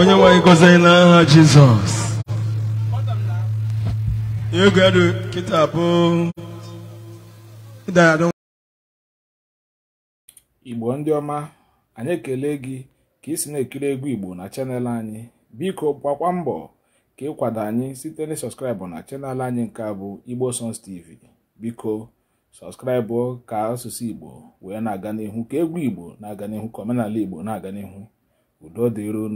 onye nwanyị gọzie n'aha jizọs ego ya kịta bụ igbo ndị ọma anyị ekele gị ka isi na-ekiri egwu igbo na chanel anyị biko gbakwa mbọ ka ịkwado anyị site na sọskraịbụ na chanel anyị nke a bụ igbo sons tv biko sọskraịbụ ka asụsụ igbo wee na-aga n'ihu ka egwu igbo na-aga n'ihu ka omenala igbo na-aga n'ihu udo dịron